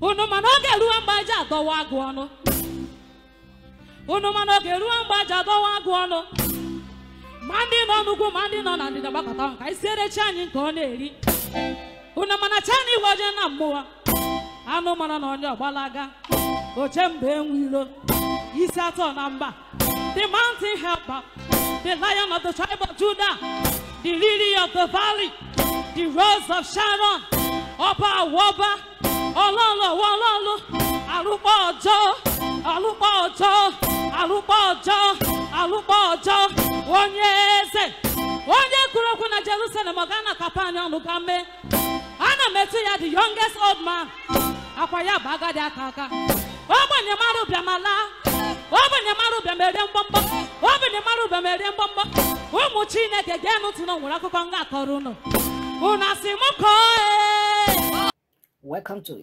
unu mana oge ruo mgbaji adọwa agụ ọnụ unu mana oge ruo mgbaji adọwa agụ ọnụ ma ndị nọ n'ugwu ma ndị nọ na ndịda gbakọta ọnụ ka anyị siere chi anyị nke ọ na-eri unu mana cha na igwe ojee na mmụọ anụ mara na onye ọgbalaga oche mgbe enwiro isi atọ na mba the mountain helper the lion of the tribe of Judah the lily of the valley the rose of Sharon ọba awọba ọjọ́ ọlụkpọ ọjọ́ alụkpọ ọjọ́ alụkpọ ọjọ́ onye eze onye kwuru okwu na jerusalem ọ ga na kapani ọnụ ga mee ana m etu ya the youngest old man akwa ya bụ agadi aka aka ogbenye mara ogbenye mara ụbịam ere mgbọmgbọ ụmụ chineke gee ntị na nwere akụkọ nga akọrọ unu asị m kọọ